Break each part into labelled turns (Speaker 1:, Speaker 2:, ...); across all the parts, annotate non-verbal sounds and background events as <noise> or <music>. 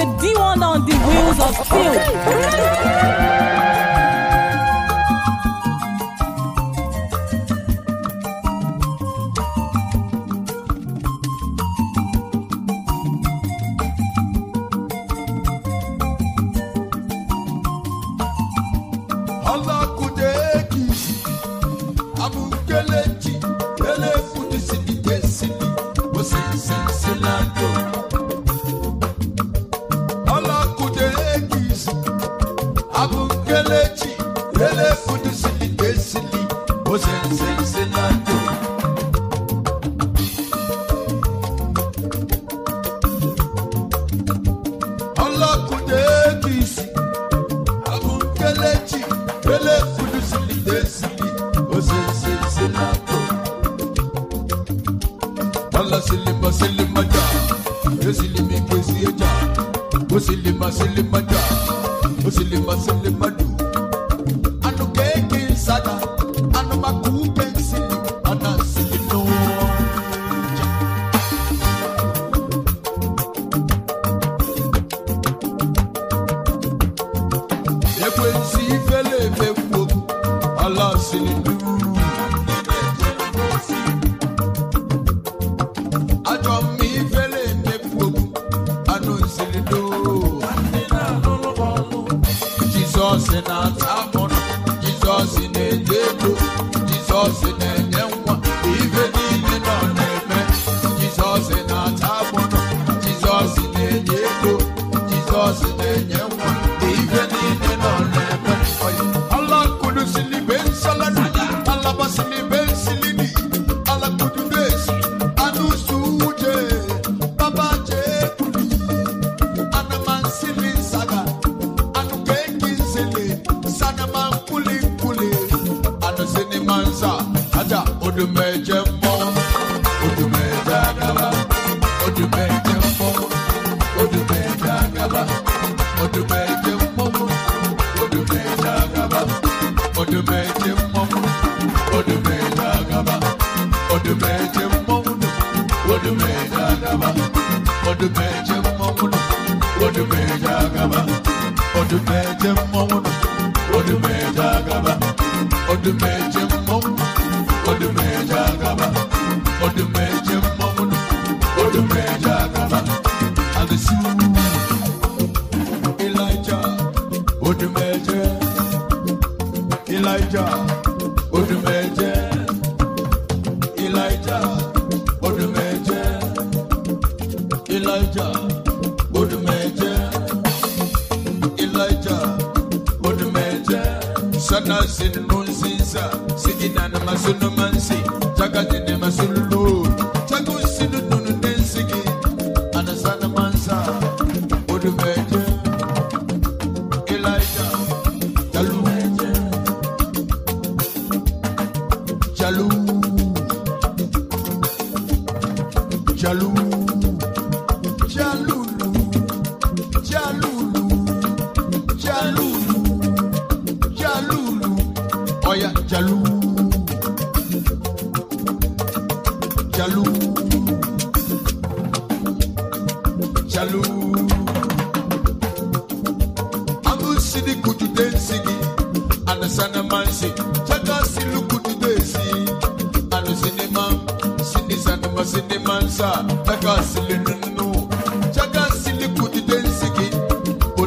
Speaker 1: The D1 on the wheels of steel.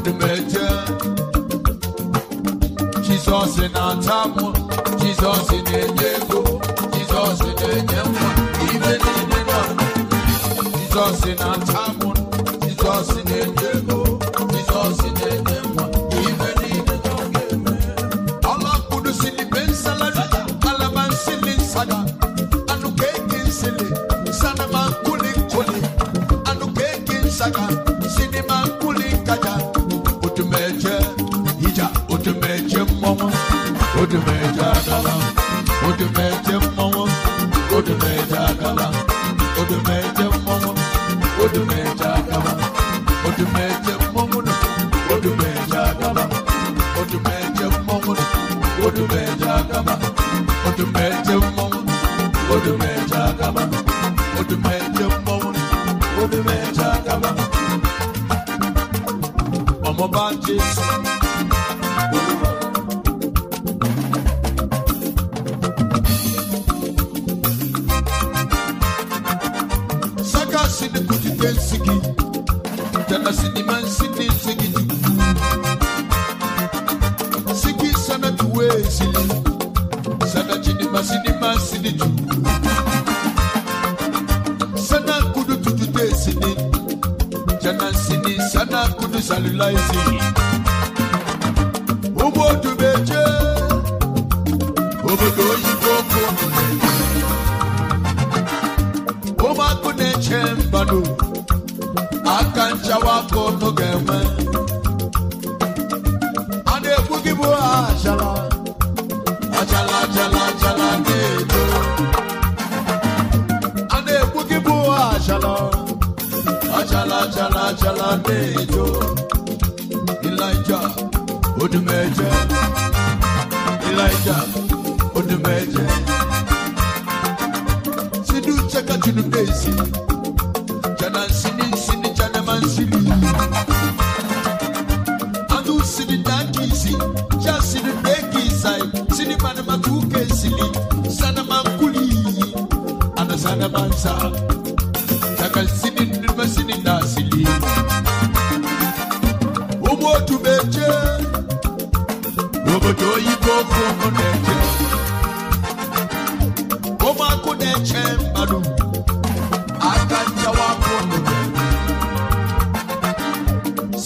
Speaker 2: old major. Jesus in Antamu, Jesus in Enya. siniju sana kudu tutu te sini jana sini sana kudu salula sini ugbo dube je obodo oyibo oku ụmụakụ na-eche mbanụ àlejò.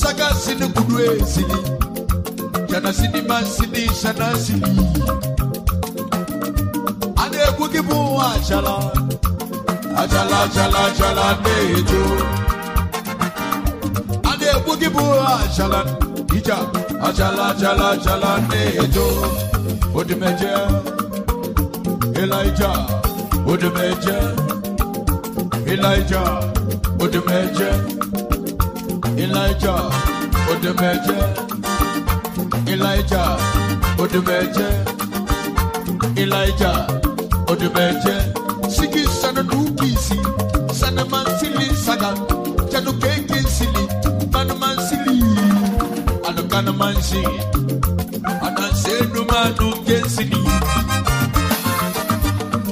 Speaker 2: saga sini kudue sini jana sini man sini sana sini ane kukibu achala achala achala achala nejo ane kukibu achala ija achala achala achala nejo odimeje Elijah odimeje Elijah odimeje. Elijah Odumeje Elijah Odumeje Elijah Odumeje Siki sana dukisi sana mansili saga Chadu keke sili manu mansili Ano kana mansi Ananse numanu kesili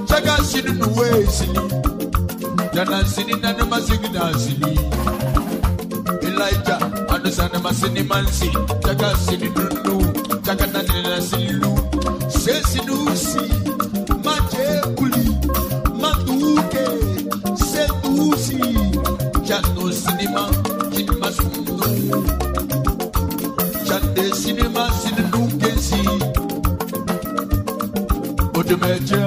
Speaker 2: Chaga sinu nuwe sili Jana sini nanuma sigi dansili Jana sini nanuma sigi Elijah, Adusana Masini Mansi, Jaka Sini Dundu, Jaka Nanina Silu, Sesinusi, Maje Kuli, Matuke, Setusi, Jano Cinema, Cinema Sundu, Chande Cinema Sindu Kensi, Odemeja,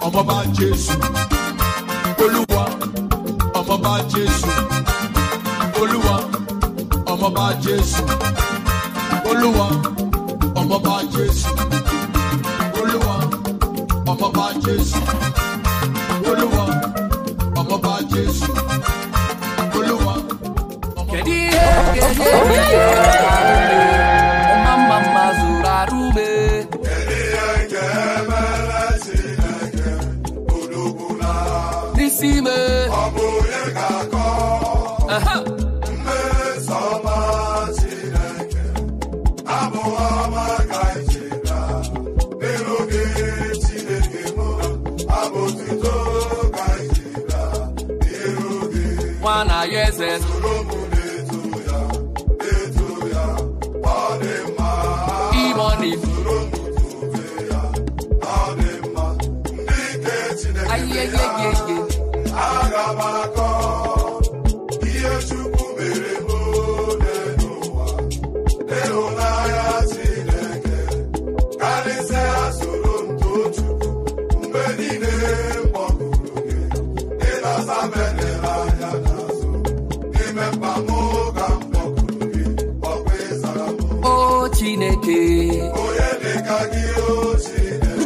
Speaker 2: Ọmọba Jésù, Olúwa. ọmọọba jésù olúwa ọmọọba jésù olúwa ọmọọba jésù olúwa ọmọọba jésù olúwa ọmọọba jésù olúwa
Speaker 3: ọmọọba jésù.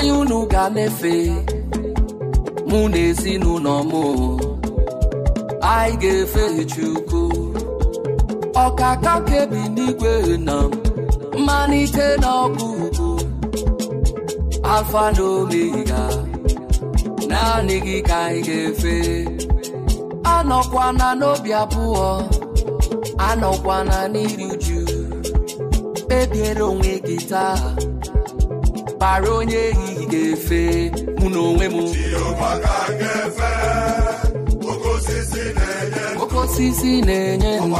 Speaker 2: onye unu ga efe mụ na ezinụlọ m anyị ga-efe Chukwu ọkaka kebi n'igwe na mmalite n'ọkụ ugwu alfa na naanị gị ka anyị ga-efe anọkwana n'obi abụọ anọkwana n'iri uju kpebiere onwe gị taa bara onye ehi gefe mụna onwe m oke osisi na-enye ndụ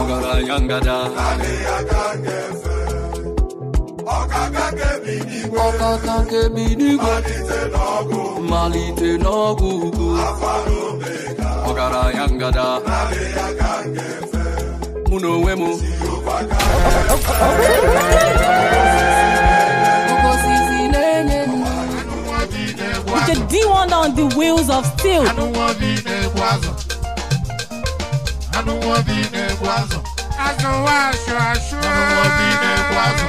Speaker 2: ọgaranya ngada ọkaka kebi n'igwe mmalite n'ọgwụ ugwu ọgaranya ngada mụ na onwe m <laughs>
Speaker 1: D1 on the wheels of steel. I don't want to be in Eguazo. I don't want to be in Eguazo. I don't want to show. I don't want
Speaker 3: to be in Eguazo.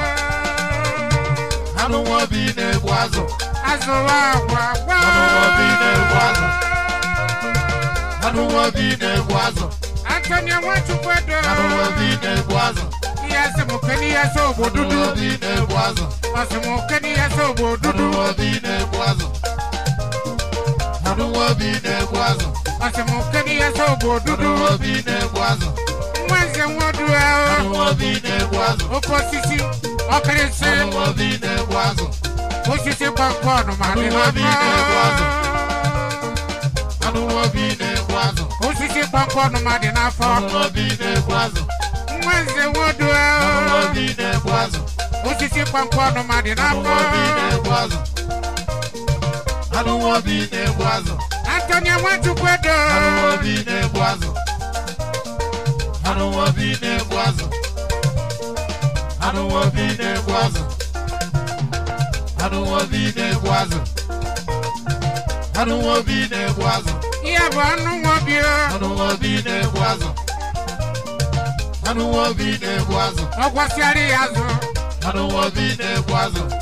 Speaker 3: I don't want to be in Eguazo. I don't want to be in Eguazo. I don't want to be in Eguazo. Antonio, what you put down? I don't want to be in Eguazo. yẹsẹ mo kẹ ni yẹsẹ obo dudu. Ọsùn mo kẹ ni yẹsẹ obo dudu. anuwa bi na-egbu azụ ọsịmụke dị ya sọ bụ odudu anuwa bi na-egbu azụ nwa nze nwa odu ahụ anuwa bi na-egbu azụ oke osisi ọkịrịsị anuwa bi na-egbu azụ osisi gbọnkọn ma dị ha anuwa bi na-egbu azụ osisi gbọnkọn ma dị n'afọ anuwa bi na-egbu azụ nwa nze nwa odu ahụ anuwa bi na-egbu azụ osisi gbọnkọn ma dị n'afọ anuwa bi na-egbu I don't want to be in a boazo. Antonia want to put I don't want to be in a boazo. I don't want to be in a boazo. I don't want to be in a boazo. I don't want to be in a I don't want to be in a Yeah, but I don't want to be. I don't want to be in a I don't want to be in a I don't want to be in a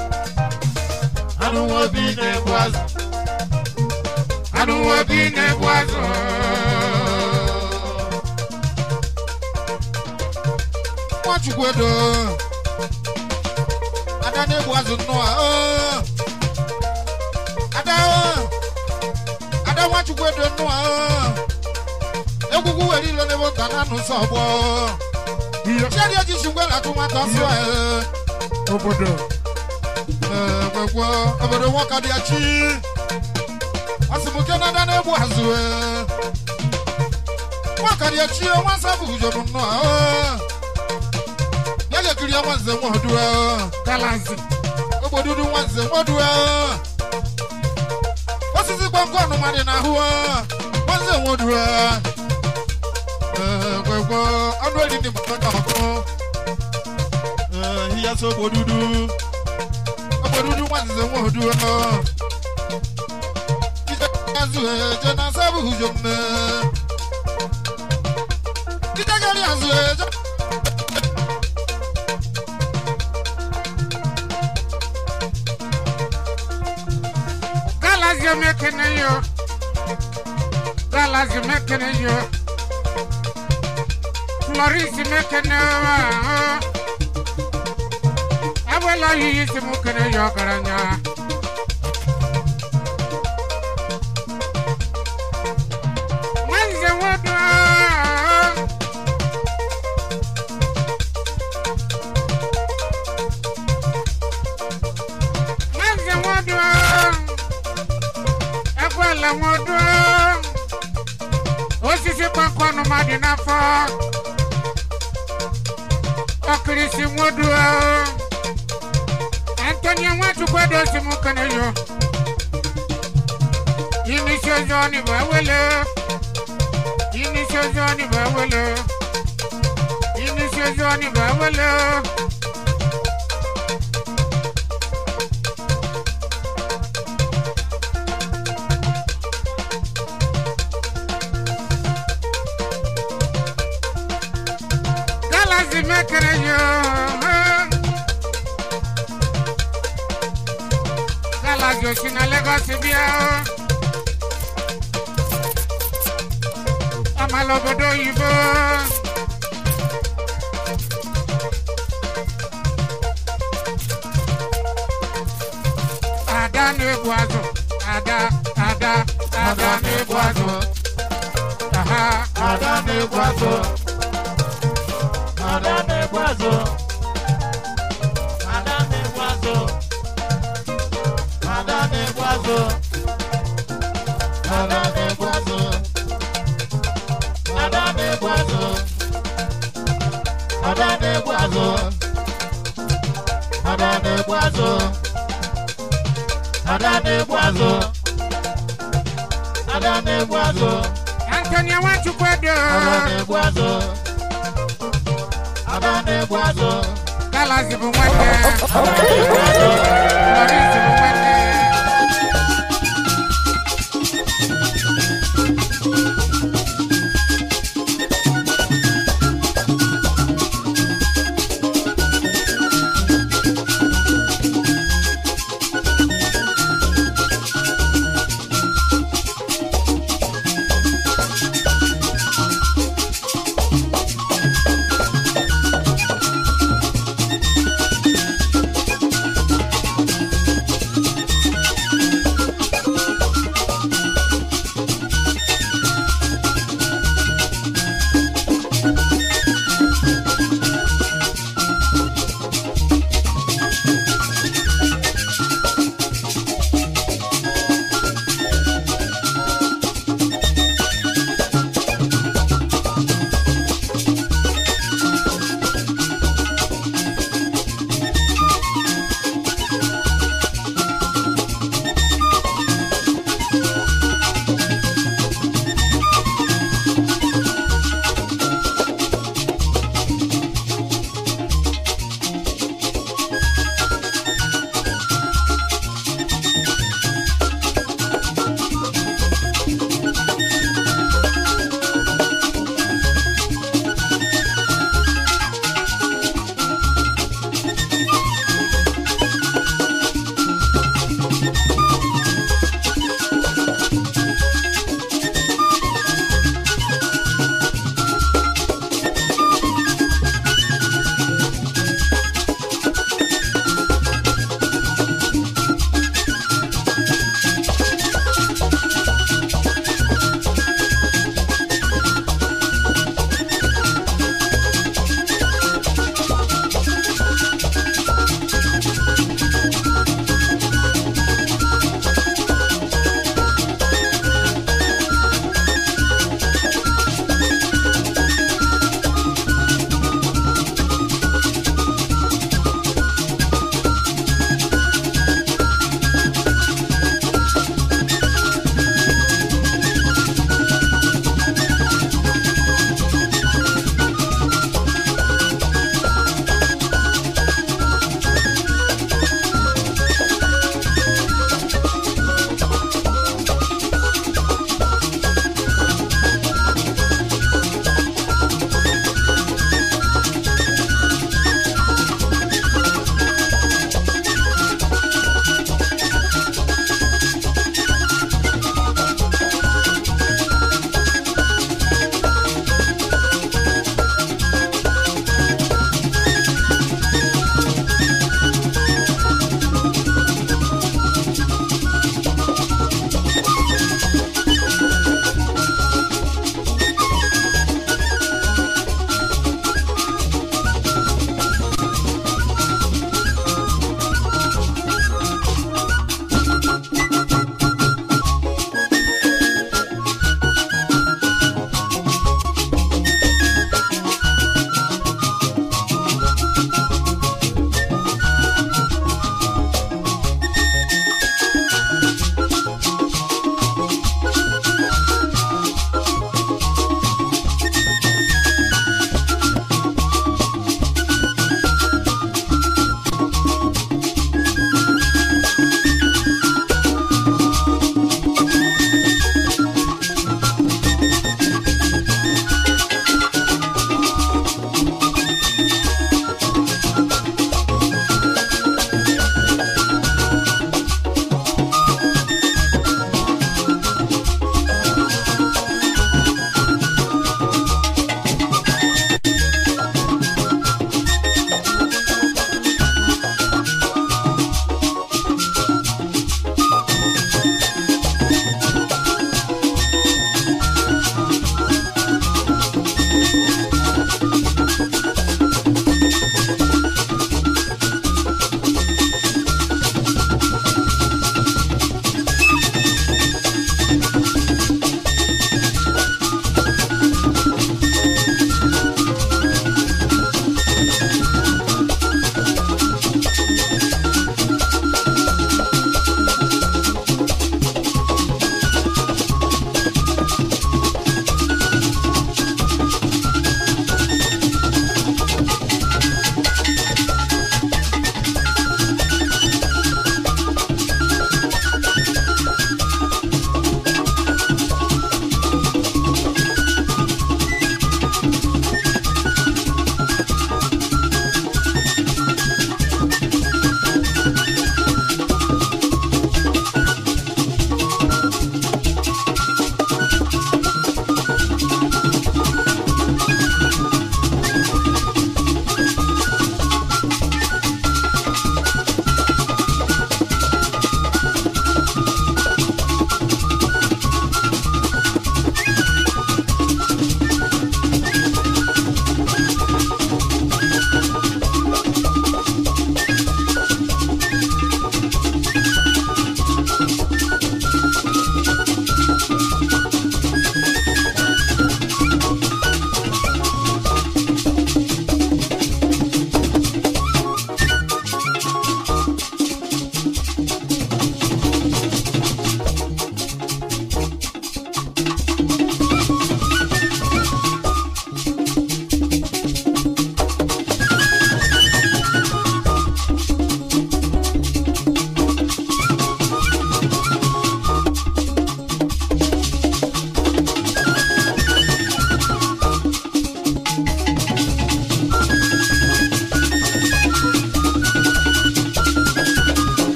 Speaker 3: I don't want to be nervous. I don't want to be nervous.
Speaker 1: What you go do? I don't know what's no. I don't. I don't want you go do no. Egungun wẹ̀rí lọ ní wọ́n tàn nánú sọ̀bọ̀. Oh. Ṣé ẹni ojú ṣùgbọ́n làtúmọ̀ tán sí ẹ̀? Obodo. Ẹ̀ẹ́ egwu obodo nwoke dị achi asịmụke nada na-egbu azụ nwoke dị achi nwa nsọ bụ ujobu nnọọ bịa ga-ekiri nwa nze nwa ọdụ e. galanzi ogbodudu nwa nze nwa ọdụ e. osisi gbamgbọ ọnụma dị n'ahụ e. nwa nze nwa ọdụ egwegwe ọnụ eri dị mkpata ọkụ ihe so ogbodudu wọ́n ti sanwó dúró. Jíjẹ́ Jésù ẹ̀jẹ̀ náà sábà hùjọ mẹ́. Jíjẹ́ kẹ́rì àṣù ẹ̀jẹ̀.
Speaker 3: Galazi mekene yo. Galazi mekene yo. Maurice mekene yo wala yi si mu kene yokara nya manze wodo manze wodo ekwala wodo osisi Kwenye watu kwa dosi mukane yo Yini shozo ni bawele Yini shozo ni bawele Yini shozo ni bawele bá ti bí ẹ ó. a máa lọ bọ́dọ̀ òyìnbó. àdá ní egbò azọ àdá àdá àdá ní egbò azọ. àdá ní egbò azọ. àdá ní egbò azọ. àdá Madame Boiseau. Madame Boiseau. Madame Boiseau. Madame Boiseau. Madame Boiseau. Madame Boiseau. Madame Boiseau. Antonia Wachukwado. Madame Boiseau. Madame Boiseau. Galas ibu nwanne. Lọrịs ibu nwanne.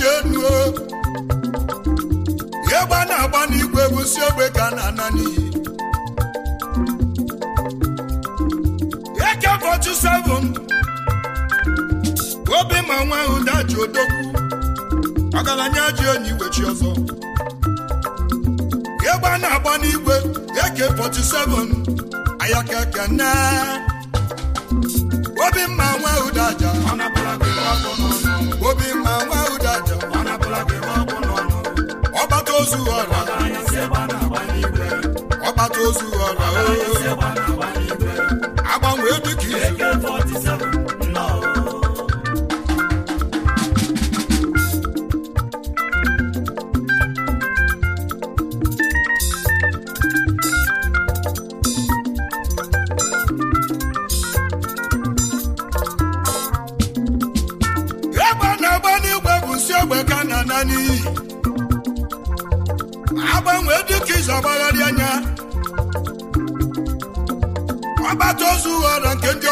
Speaker 2: dị elu egbe a na-agba n'igwe bụ egwusi ogbe ka a na-ana n'iyi eke bọchụ sevụn obi ma nwa ahụ daji odogwu ọgaranya ji onye iwechi ọzọ egbe a na-agba n'igwe eke bọchụ sevụn ayakeke nne obi mma nwa ahụ daja obi mma ozu ọra ọkpata ozu ọra agbanwee dịka izu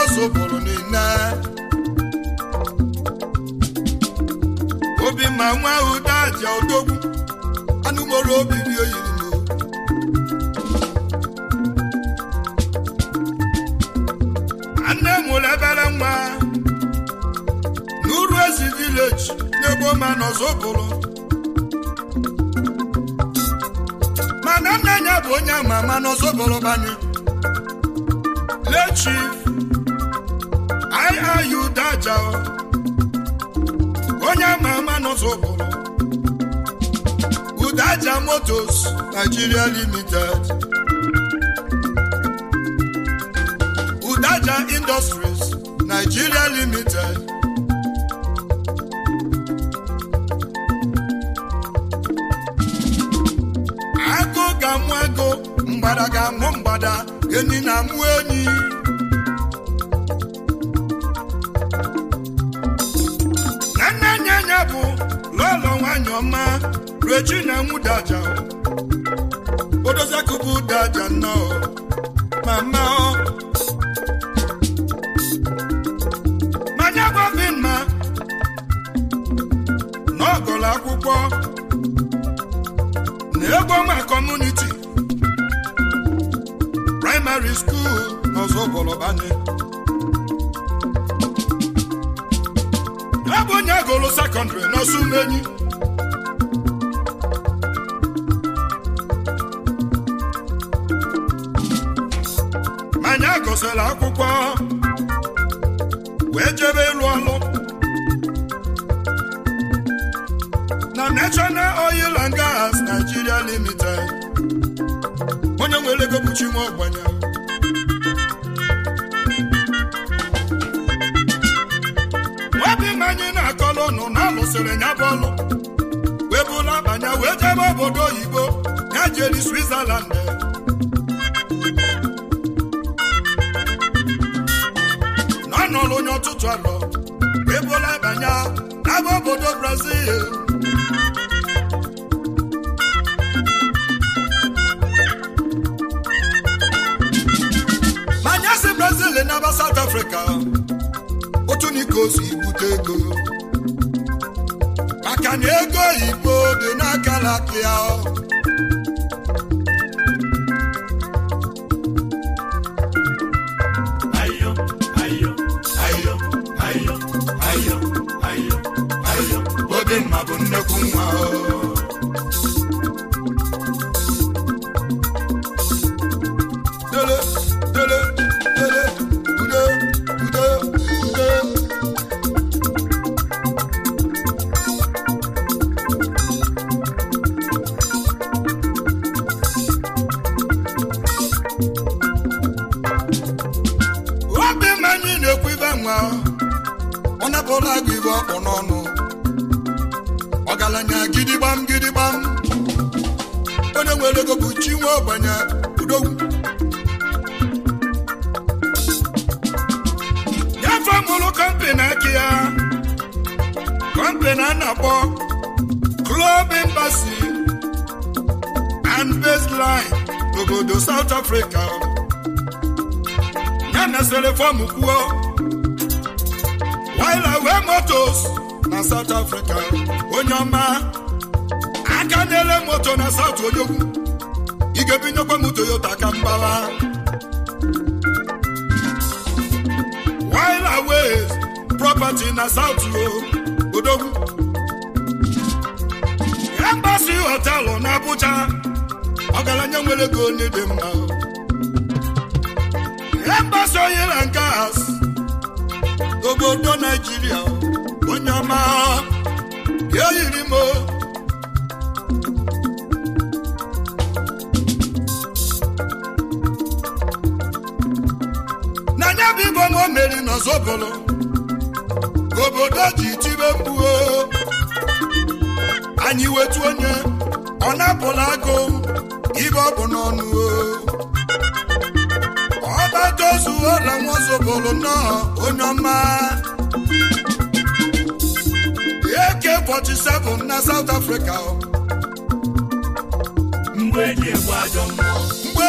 Speaker 2: obodo niile obi ma nwa ahụ daaja odogwu anụmọrụ obi dị oyiri m m mụrụ ebere nwa n'uru ezi vileji n'ebe ma mana nne ya bụ onye ama ama banye lechi ayudaja onye ama ama n'ụzọ ụbụrụ udaja motos Nigeria limited udaja industries Nigeria limited agụ ga-amụ ego, mgbada ga-amụ mgbada enyi na-amụ enyi ọma rue na enwu daja odoziakụbụ daja nnọọ mama ọ manya gwabi mma n'ọgọlụ akwụkwọ na egwu ọma kọmuniti praịmarị skuul n'ọzọ ọgọlọbanye ebe onye agụlụ sekọndrị n'ọsọ umenyi gụsịrị akwụkwọ wee jebe ịlụ ọlụ na National Oil and Gas Nigeria Limited onye nwere ego nwa ọgbanya obi m anyị na-akọlụ nụ na alụsịrị ya bụ ọlụ wee bụla abanya wee jebe obodo oyibo ya jeri Switzerland n'ọrụ onye ọtụtụ alọ ebola banya n'aba obodo brazil manya si brazil n'aba south africa otu niko si bute ego maka na ego igbo dị n'aka lakia kunde kumwa obodo naijiria onye ọma bịa yiri m n'anya bụ igbo ma o meri n'ọzọbụlụ obodo ji tibe mkpuo anyị wetu onye ọ na-apụla agụ ibe ọ bụ n'ọnụ o ozu ọla nwaosoboro nnọọ onye ọma AK47 na South Africa mgbe eji egbu ajọ mmụọ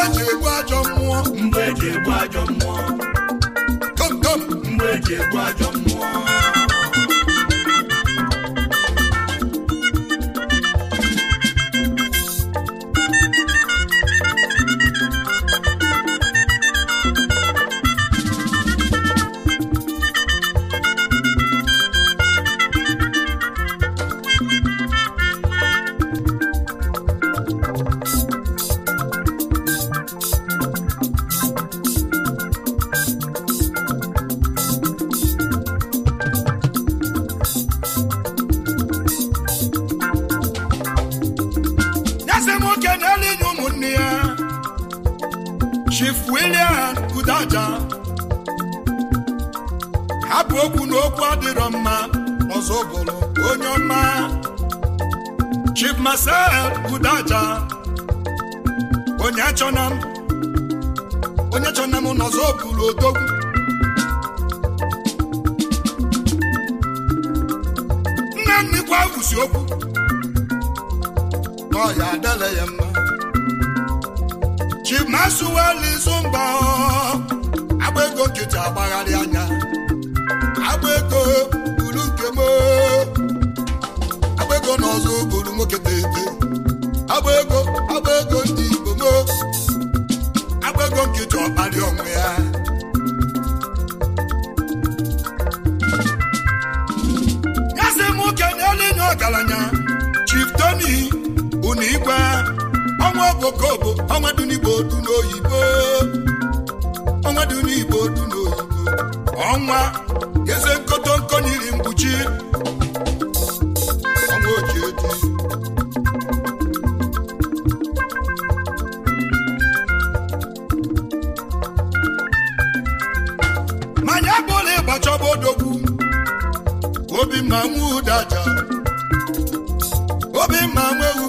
Speaker 2: mgbe eji egbu ajọ mmụọ mgbe eji egbu ajọ mmụọ kom kom mgbe eji egbu ajọ mmụọ Chief William Kudaja hapụ okwu na okwu adịrọ mma ọzọ bụrụ onye ọma Chief Marcel Kudaja onye chọna m onye chọna m n'ọzọ bụrụ odogwu nne nnukwu awụsi okwu ọ ya adịla ya mma chimasuwelizu mba agba ego nkịtị agbagharị anya agba ego buru nkem agba ego na nwoke tete agba ego ndị igbo agba ego nkịtị ọkpalị ọnwụ ya nwa obokobo ọnwa dunigbo n'oyibo ọnwa dunigbo n'oyibo ọnwa eze nkotonko n'iri mkpuchi ọnwa oji eji manya bụla ịgbachọba odogwu obi Ma nwa ụdaja obi ma nwa ewu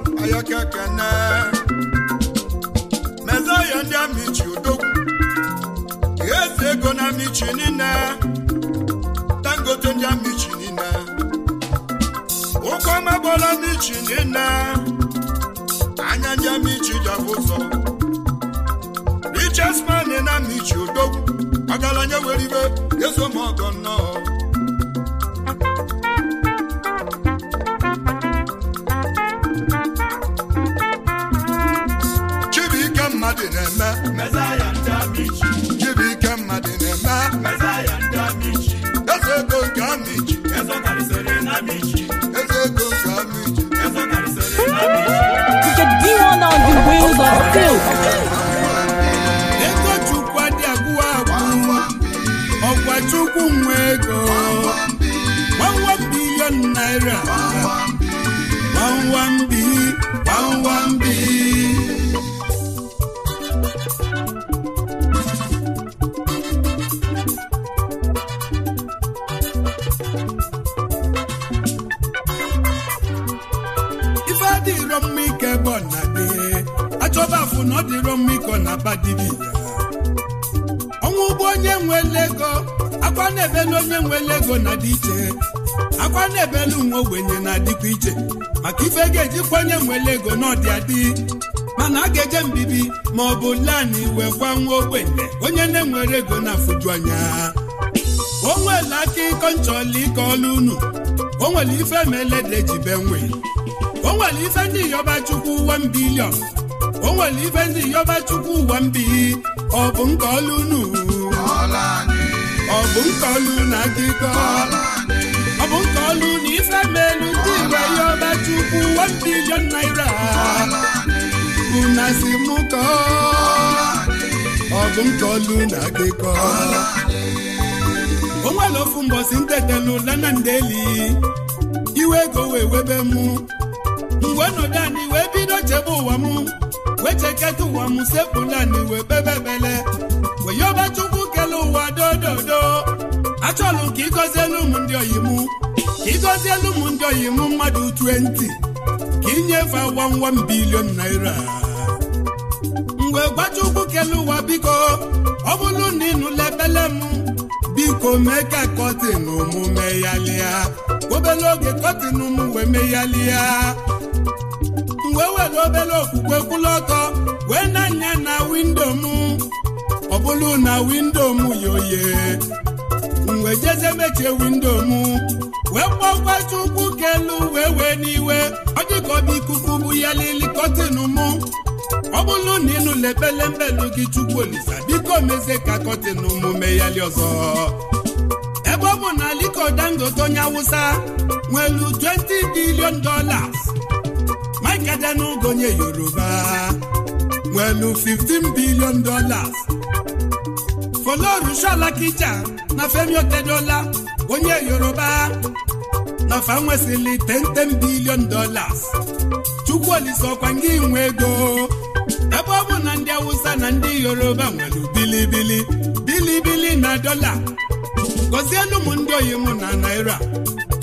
Speaker 2: ayakekene mezaya ndị amichi odogwu eze ego na amichi niile dangote ndị amichi niile ụkọ magbọla amichi niile anya ndị amichi jabụ ụzọ richesman na ego chukwu adị agwụ agwụ chukwu nwe ego gbawam bilion naira gbawam mbi gbawam mbi ọ dịrọ ọnwụ onye nwere ego akwa na-ebelu onye nwere ego na dị iche akwa na-ebelu nwa ogbenye na-adịkwa iche maka ife ga-ejikwa onye nwere ego n'ọdị adị mana a ga-eje mbibi ma ọ bụ lanị wee gwa nwa ogbenye onye na-enwere ego na-afụju anya o nwere aka ịkọ nchọla ịkọ ọlụ unu o nwere ife ma elede o nwere ife ndị yọba chukwu 1 bilion o nwere ife ndị yọba chukwu ụwa mbi ọ bụ nke ọlụ unu ọ bụ nke ọlụ na akụkọ ọ bụ nke ọlụ na ife melu ndị igwe yọba chukwu one billion naira una si mụ kọọ ọ bụ nke ọlụ na akụkọ o nwere ofu mbọsi ntetelu lana ndeli iwe ego wee webe mụ mgbe ọnọdụ anyị wee bido chebe ụwa m wecheketa ụwa m sepụlani wee bebebele weyoba chukwu kele ụwa dododo achọlụ ka ịgọzielu m ndị oyimu ka ịgọzielu m ndị oyimu mmadụ 20 ka ịnyefe wawam bilion naira mgbe gbachukwu kele ụwa biko ọ bụrụ na ịnụla ebele m biko mee ka kọtin mụ meghalịa obere oge kọtin m wee meghalịa m wee were obere okwukwe kwụlụ ọtọ wee na-anya na windo m ọ bụrụ na windo m yoye wee jeze mechie windo m wee kpọkwa chukwu kelu wee wee n'iwe ọ dị ikuku bụ ya lili kọtin m ọ bụrụ na ịnụla gị chukwu olisa biko mezie ka kọtin m meghali ọzọ ebe ọ bụ na Aliko Dangote onye Awụsa nwere 20 billion dolas n'oge onye yoruba nwelu 15 billion dollars folorunshola kija na femi otedola onye yoruba na fa 10 billion dollars chukwuolisokwa ngị inwe ego ebe ọ bụ na ndị Awusa na ndị yoruba nwere bilibili bilibili na dọla gọzie ụmụ ndị oyi mụ na naira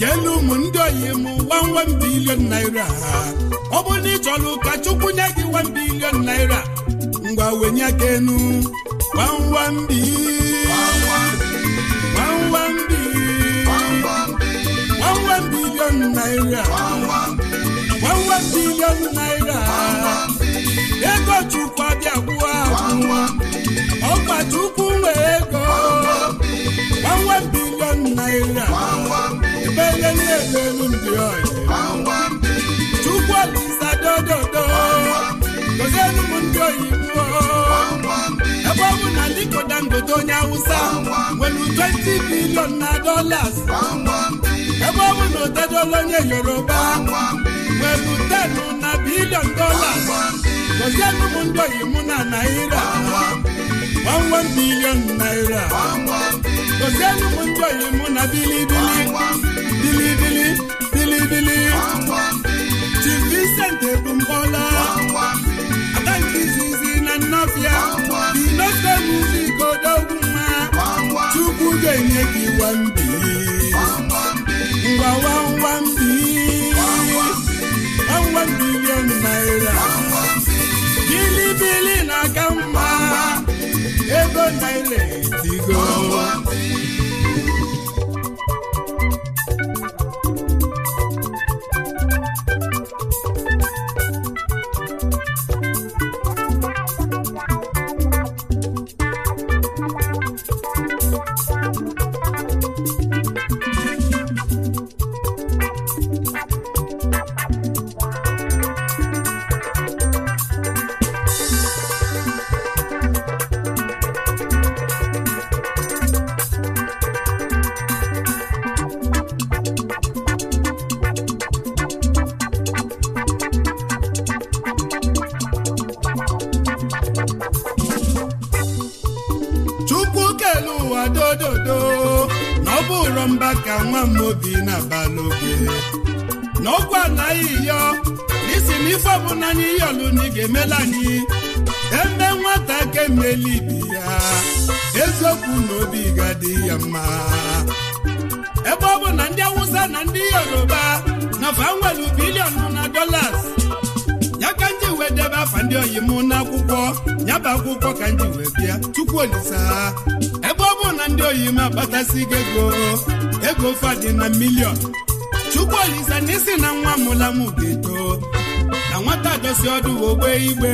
Speaker 2: keelu ụmụ ndị oyi m 1 billion naira ọ bụrụ na ị chọrọ ụka chukwu nye gị 1 billion naira ngwa wenye aka enu 1 billion naira 1 billion naira ego chukwu abịa kwụọ ahụ ọkpa chukwu nwee ego 1 billion naira onye niile elu ndị oyi Chukwu Olisa ndị oyibo ebe ọ bụ na Aliko Dangote onye Awụsa nwere twenti bilion na dollars ebe ọ bụ na Otedola onye Yoruba nwere 10 na bilion dollars gozielu ndị oyibo na Naira bilion Naira ndị oyibo na bilibili bilibili bilibili ji Vincent ebumbọla na nnọbịa dinofe muzigodogwu nwa Chukwu ga-enye gị wambi ngwa naira na-aka mma ego naira ndị yoruba na fa nwere na dolas ya ka nji wee debe afa ndị oyi m ya bụ akwụkwọ ka nji wee bịa tupu olisa ha ebe ọ bụ na ndị oyi m agbatasigo ego ego fadị na miliọn tupu olisa na isi na nwa mụla m ga-eto na nwata dosi ọdụ ogbe igbe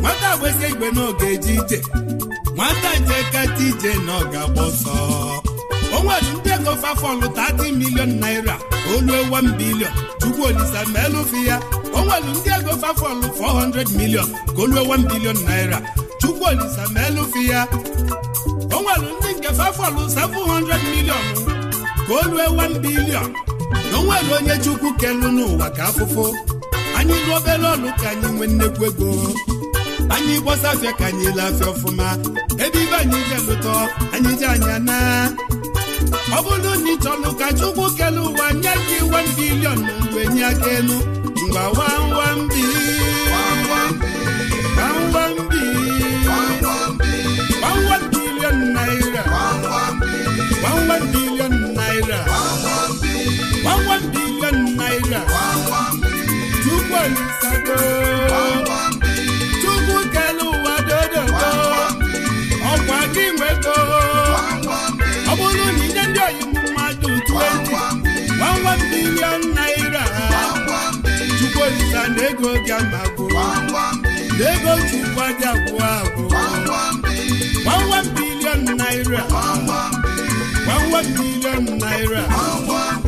Speaker 2: nwata gbesi igbe n'oge eje ije nwata njeka ije na ọ ga-agba ọsọ nwere ndị ego fafọlụ 30 milion naira oluo 1 bilion chukwu ma elufi ndị ego fafọlụ 400 milion ka o 1 bilion naira o ndị nke fafọlụ 700 milion ka oluo 1 bilion na onwere onye chukwu kelu n'ụwa ka afụfụ anyị lụ obere ọlụ ka anyị nwee nnekwu ego anyị gbọsafịa ka anyị laafịa ọfụma ebe ibe anyị ga-elụtọ anyị ji anya ọ bụrụ na ị chọrọ ka chukwu kele ụwa nye gị wan bilion na mgbe nye aka elu ngwa wawambi wawambi wawan naira chukwu olisago ego bịa ma gwụ ego ji dị abụọ agwụ bilion naira bilion naira